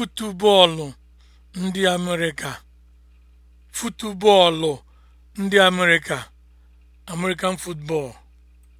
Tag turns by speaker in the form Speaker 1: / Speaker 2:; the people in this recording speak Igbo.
Speaker 1: Futubọọlụ ndị Amerịka (American football)